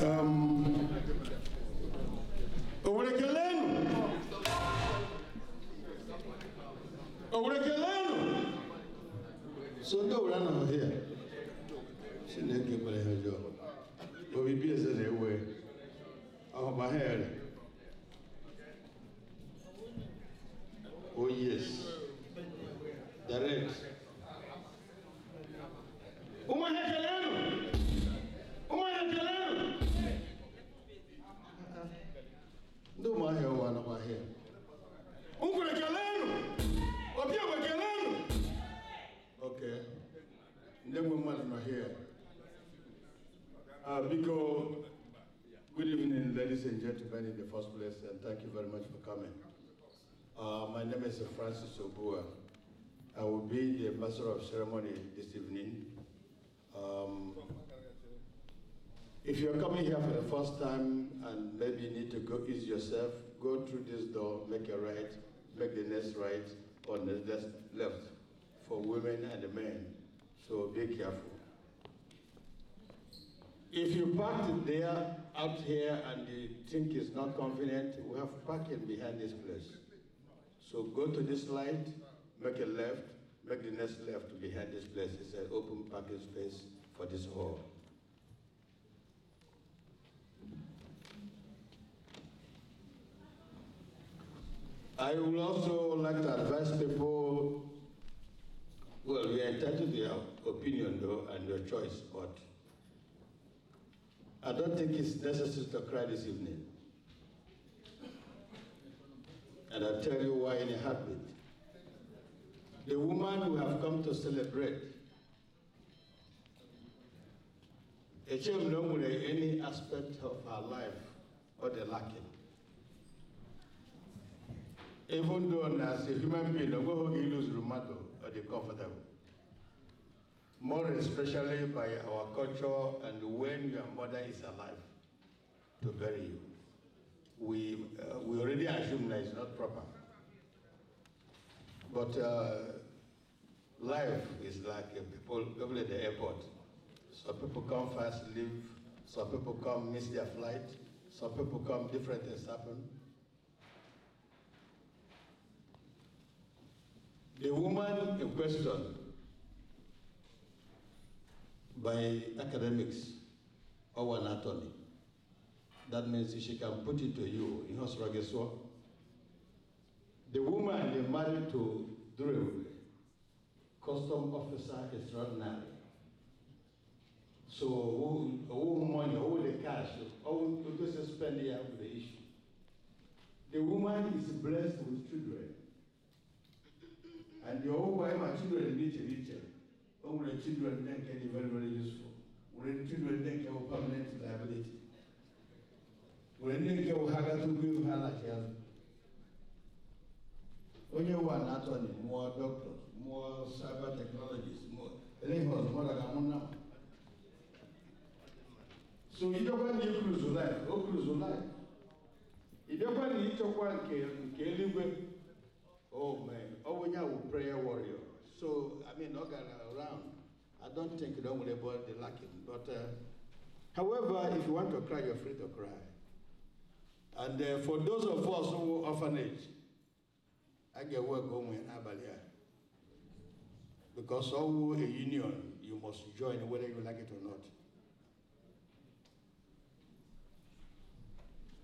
Urekelenu. Um, Urekelenu. So no run over here. She didn't get my hair job. But we busy anyway. Oh my hair. Oh yes. Direct. Uh, my name is Francis Obua. I will be the master of ceremony this evening. Um, if you're coming here for the first time and maybe you need to go ease yourself, go through this door, make a right, make the next right or the next left for women and men. So be careful. If you park it there, out here, and you think it's not convenient, we have parking behind this place. So go to this light, make a left, make the next left behind this place. It's an open parking space for this hall. I would also like to advise people, well, we are entitled to your opinion though and your choice, but I don't think it's necessary to cry this evening. And I'll tell you why in a heartbeat. The woman we have come to celebrate, a child no any aspect of her life or the lacking. Even though as a human being, no go lose rheumato or the comfortable more especially by our culture and when your mother is alive to bury you. We, uh, we already assume that it's not proper. But uh, life is like people, people at the airport. Some people come fast, leave. Some people come, miss their flight. Some people come, different things happen. The woman in question by academics or attorney. That means she can put it to you in Hosrageswa, the woman they married to Drew, custom officer extraordinary. So all, money, all the cash, all just spend here with the issue. The woman is blessed with children. And the whole and children need to all the children then can be very, very useful. When the children then can have permanent liability. When they can have to give her like health. Only one, not only more doctors, more cyber technologies, more. Anything more like I'm now. So you don't want to cruise life, oh cruise life. You don't want to eat your one, kill you live with? Oh man, oh, when you're a prayer warrior. So, I mean, Ogara around, I don't think don't worry about the lacking. But, uh, however, if you want to cry, you're free to cry. And uh, for those of us who are orphanage, I get work home in Abalia. Because all a union, you must join whether you like it or not.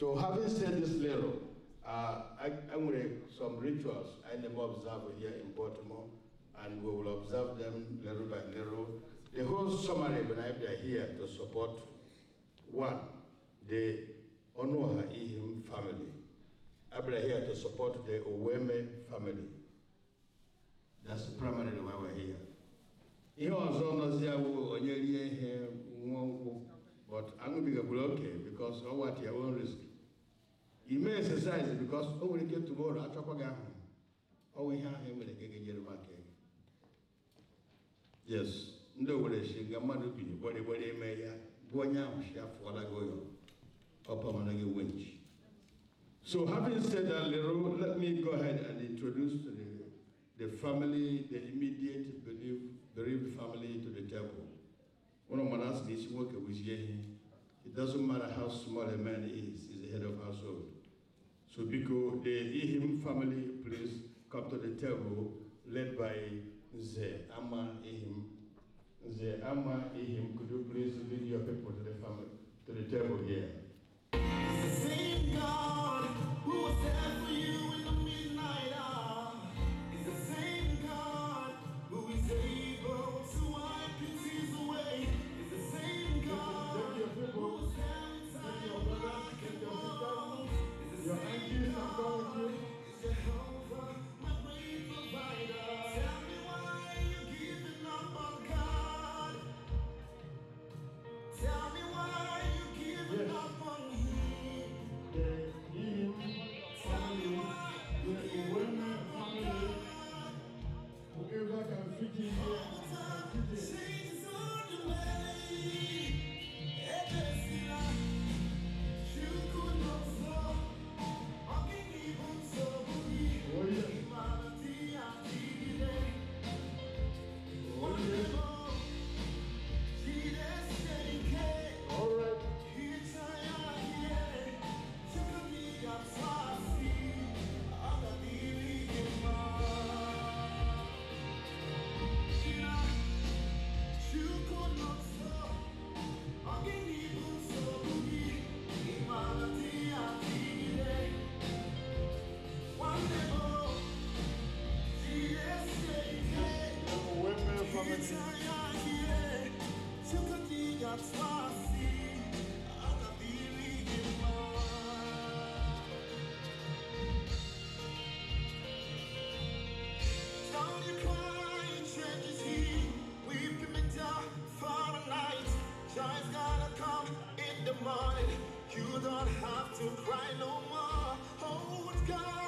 So having said this little, uh, I, I'm with some rituals I never observe here in Baltimore and we will observe them little by little. The whole summary, when I are here to support, one, the Onoha Ihim family. I'm here to support the Oweme family. That's primarily why we're here. But I'm going to be ihe nwa nkwụ but aṅụbigagburu oke bikos ọwa t your own risk may exercise because only nwere ike tomorrow achọkwa gị ahụ ọwa ihe ahụ emere gị ga-enyere m aka yes No, Owerri si nga mmadụ bi gbarigbari eme ya gụọ onye ahụ for afụọla gị ụyọ ọpamana gị wench So having said that little, let me go ahead and introduce the, the family, the immediate bereaved, bereaved family to the table. One of my last days work was here. It doesn't matter how small a man is, he's the head of household. So because the Ihim family, please come to the table led by the Ama Ehim. The Ama Ehim, could you please lead your people to the family, to the table here? Same God who was there for you. You don't have to cry no more. Oh, God.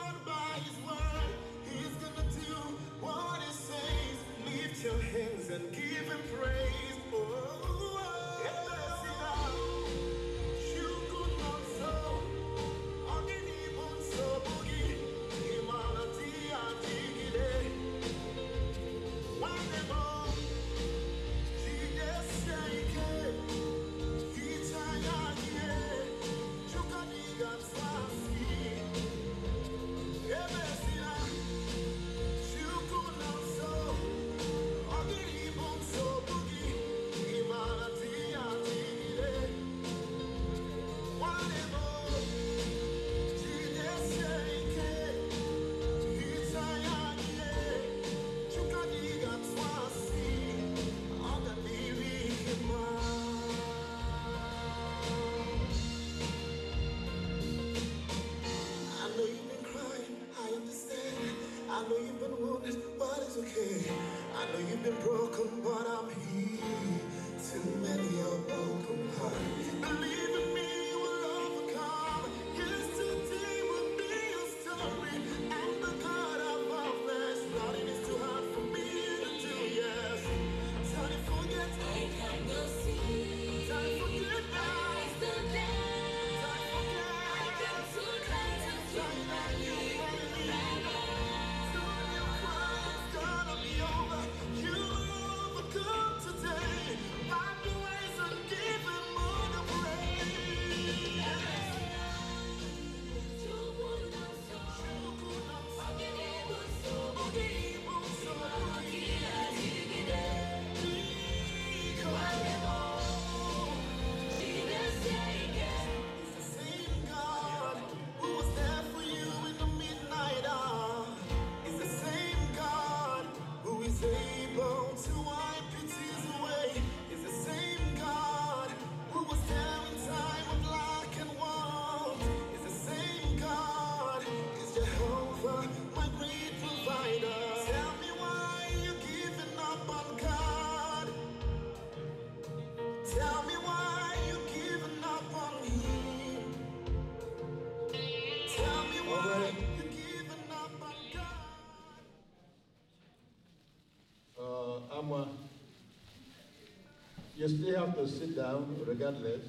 You still have to sit down regardless.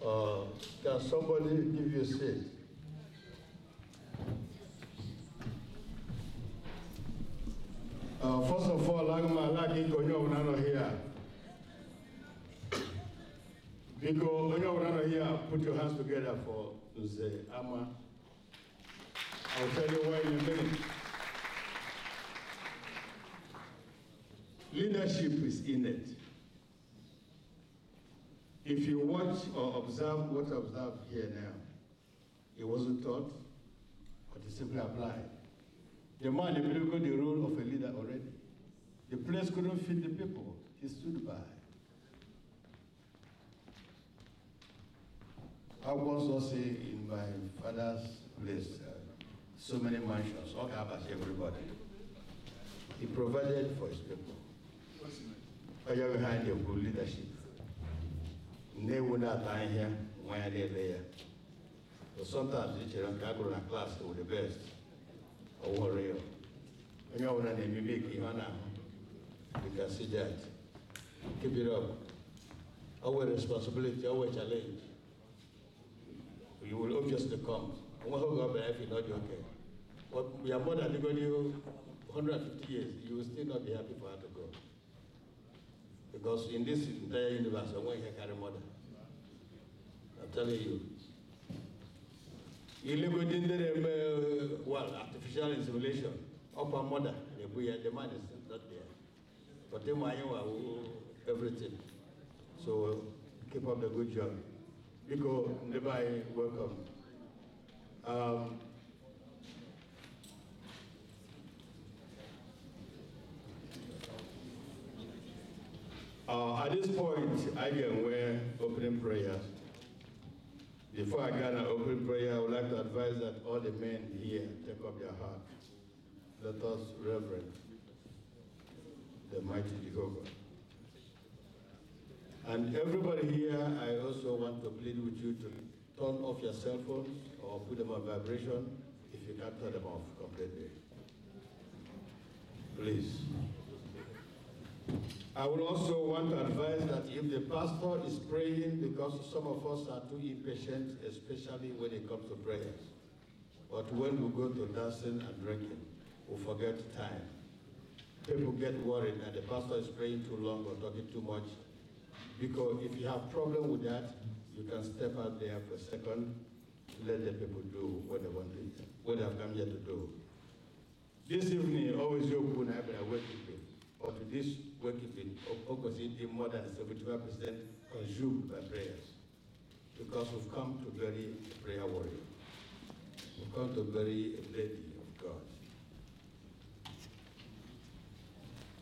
Uh, can somebody give you a seat? Uh, first of all, Agma Lagi Konyo Unano here. because you're here, put your hands together for the Ama. I'll tell you why in a minute. Leadership is innate. If you watch or observe what I observe here now, it wasn't taught, but it simply applied. The man played the role of a leader already. The place couldn't fit the people. He stood by. I was also in my father's place, uh, so many mansions, all covers everybody. He provided for his people onye nwe ha na-ekwu leadership nnewu na-ata ahịhịa nwa ya na-ele ya sometimes i chere nke a gụrụ na klaasị were best ọwụrụ ya onye ọbụla na-emebe ka ihe ọ na-ahụ dịka sijat kibiri ọwụ responsibility ọwụ challenge you will obviously come nweghị oge ọ bịara efi na ọ dị oke ya mmadụ adịgo n'ihu 150 years you will still not be happy for adam because in this entire universe, I'm going to carry mother. I'm telling you. you live within gender, well, artificial insemination, upper mother, the man is not there. But then my uh, everything. So keep up the good job. Nico, nearby, welcome. Um, Uh, at this point, I can wear opening prayer. Before I can opening prayer, I would like to advise that all the men here take up their heart. Let us reverence the mighty Jehovah. And everybody here, I also want to plead with you to turn off your cell phones or put them on vibration if you can't turn them off completely. Please. I would also want to advise that if the pastor is praying, because some of us are too impatient, especially when it comes to prayers. But when we go to dancing and drinking, we forget time. People get worried that the pastor is praying too long or talking too much. Because if you have problem with that, you can step out there for a second, let the people do what they want to, what they have come here to do. This evening, always open, I've been awake with of this working Okosidi, more than 75% consumed by prayers because we've come to bury a prayer warrior. We've come to bury a lady of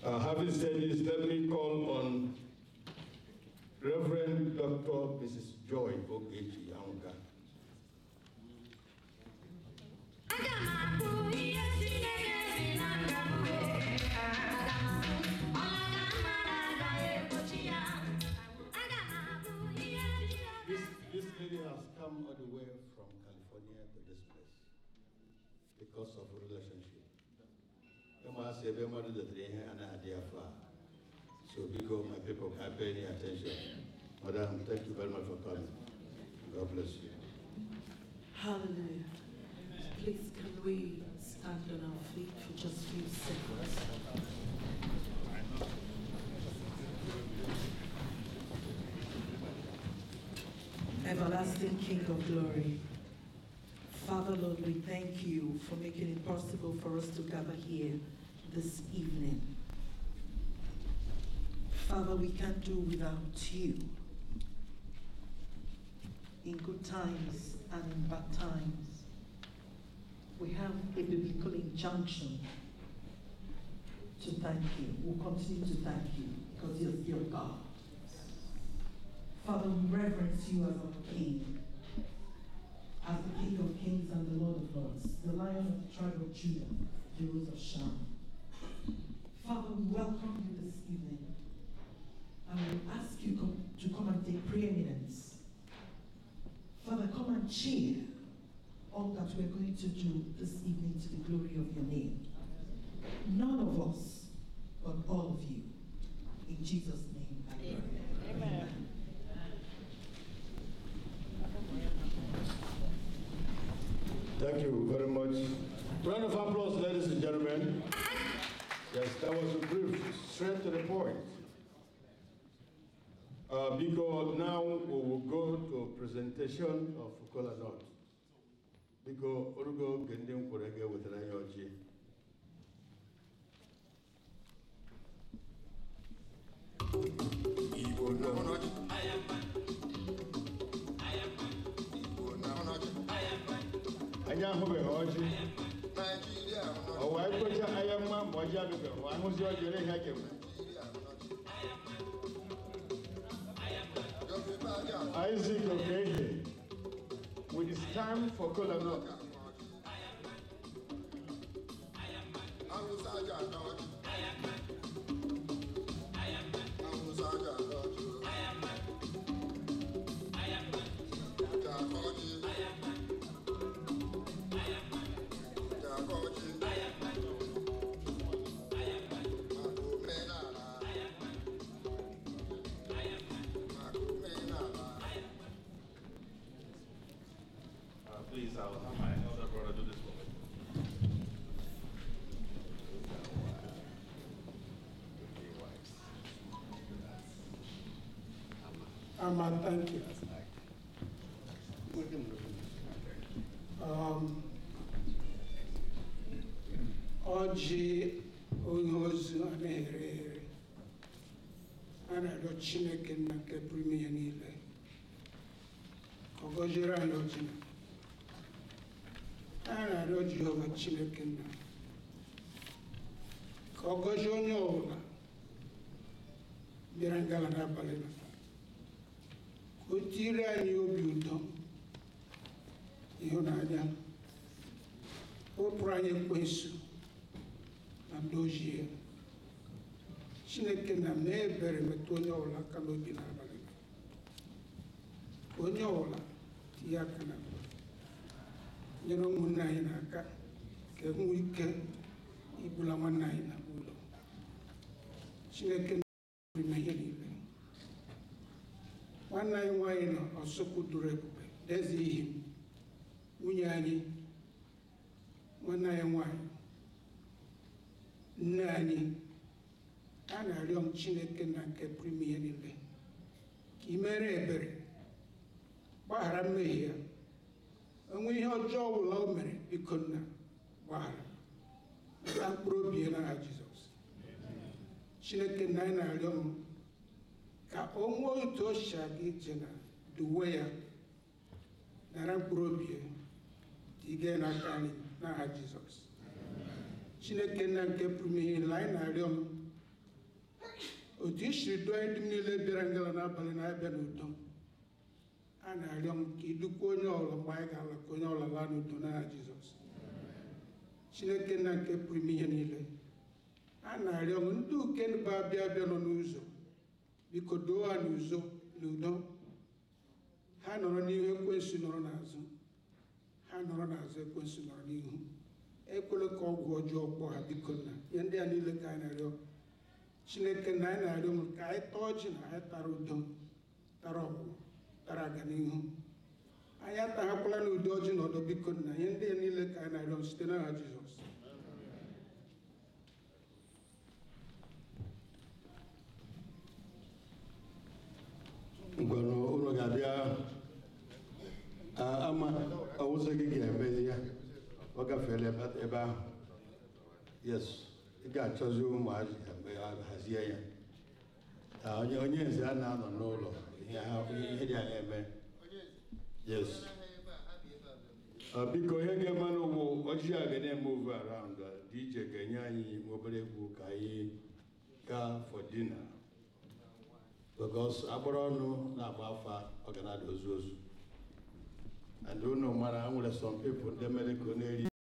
God. Uh, having said this, let me call on Reverend Dr. Mrs. Joy Ogechi Aunga purpose of relationship. a na So because my people can pay any attention. Madam, thank you very much for coming. God bless you. Hallelujah. Please can we stand on our feet for just a few seconds? Everlasting King of Glory. Father, Lord, we thank you for making it possible for us to gather here this evening. Father, we can't do without you. In good times and in bad times, we have a biblical injunction to thank you. We'll continue to thank you because you're, you God. Father, we reverence you as our King as the King of Kings and the Lord of Lords, the Lion of the tribe of Judah, the Rose of Sharon. Father, we welcome you this evening. And we ask you to come and take preeminence. Father, come and cheer all that we're going to do this evening to the glory of your name. None of us, but all of you. In Jesus' name, I pray. Amen. Amen. Thank you very much. Round of applause, ladies and gentlemen. Yes, that was a brief, straight to the point. Uh, because now we will go to a presentation of Kola North. Because Urugo Gendim Kurege with an IOG. I am nya ho be oji Isaac Okehe with time for Kola Noka. Armand, thank you. Um, Oggi ognoso anere anado Chineke nna nke pụrụ ihe niile ọgọjiri anyị oji anyị na-arịọ Jehova Chineke nna ka ọ gọzie onye ọbụla bịara jiri anyị obi ụtọ ịhụnanya wepụrụ anyị ekwensu na ndị chineke na mee ebere metụ onye ọbụla aka n'obi n'abalị onye ọbụla tinye aka na nyere ụmụnne anyị aka ka enwe ike ibula nwanne anyị na ụlọ chineke na ihe niile nwanne anyị nwaanyị nọ ọsụkwụ doro ebube eze ihe nwunye anyị nwanne anyị nwaanyị nne anyị a na-arịọ m chineke na nke pụrụ niile ka ị mere ebere gbaghara mmehie ya onwe ihe ọjọọ ọbụla o mere biko nna gbaghara na mkpụrụ obi ya jizọs chineke na anyị na-arịọ m ka o ŋuo yi to sia gị dzena duwe ya nara mkpụrụ obi ya na n'aka na n'aha jizọs chineke nna nke pụrụ ihe na-arịọ m otu isiri dụọ ndị m niile bịara ngala n'abalị na-abịa n'udo a na-arịọ m ka idukwa onye ọlọ mgbe anyị ga-ala ka onye ọlọ laa n'udo n'aha jizọs chineke nna nke pụrụ ihe niile a na-arịọ m ndị nọ n'ụzọ biko doo ha n'udo ha nọrọ n'ihu ekwensu nọrọ n'azụ ha nọrọ n'azụ ekwensu nọrọ n'ihu ekwela ka ọgwụ ọjọọ kpọọ ha biko na ihe ndị a niile ka anyị na-arịọ chineke na anyị na-arịọ m ka anyị taa ọjị na anyị tara udo tara ọgwụgwụ tara aganihu anyị ọjị na ọdọ biko na ihe ndị a niile ka anyị na-arịọ site n'aha jizọs ngwere unu ga-abịa ah, ama ọwụzọ gị ga-emezi ya ọ gafere ebe ahụ yes ị ga-achọzi ụmụazị hazie ya ah, na onye eze a na-anọ n'ụlọ ihe dị anya eme yes ah, biko ihe ga-eme n'ụgbọ ọjị a ga na-eme ove dị iche ga-enye anyị obere egwu ka anyị gaa for dinner because agbara ọnụ na-agba afa ọ ga na-ada ozu ozu and unu mara nwere some people ndị mere ka ọ na-eri